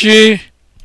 she